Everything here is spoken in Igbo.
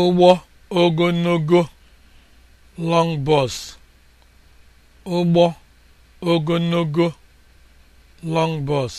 ụgbọ ogologo long bus ụgbọ ogologo long bus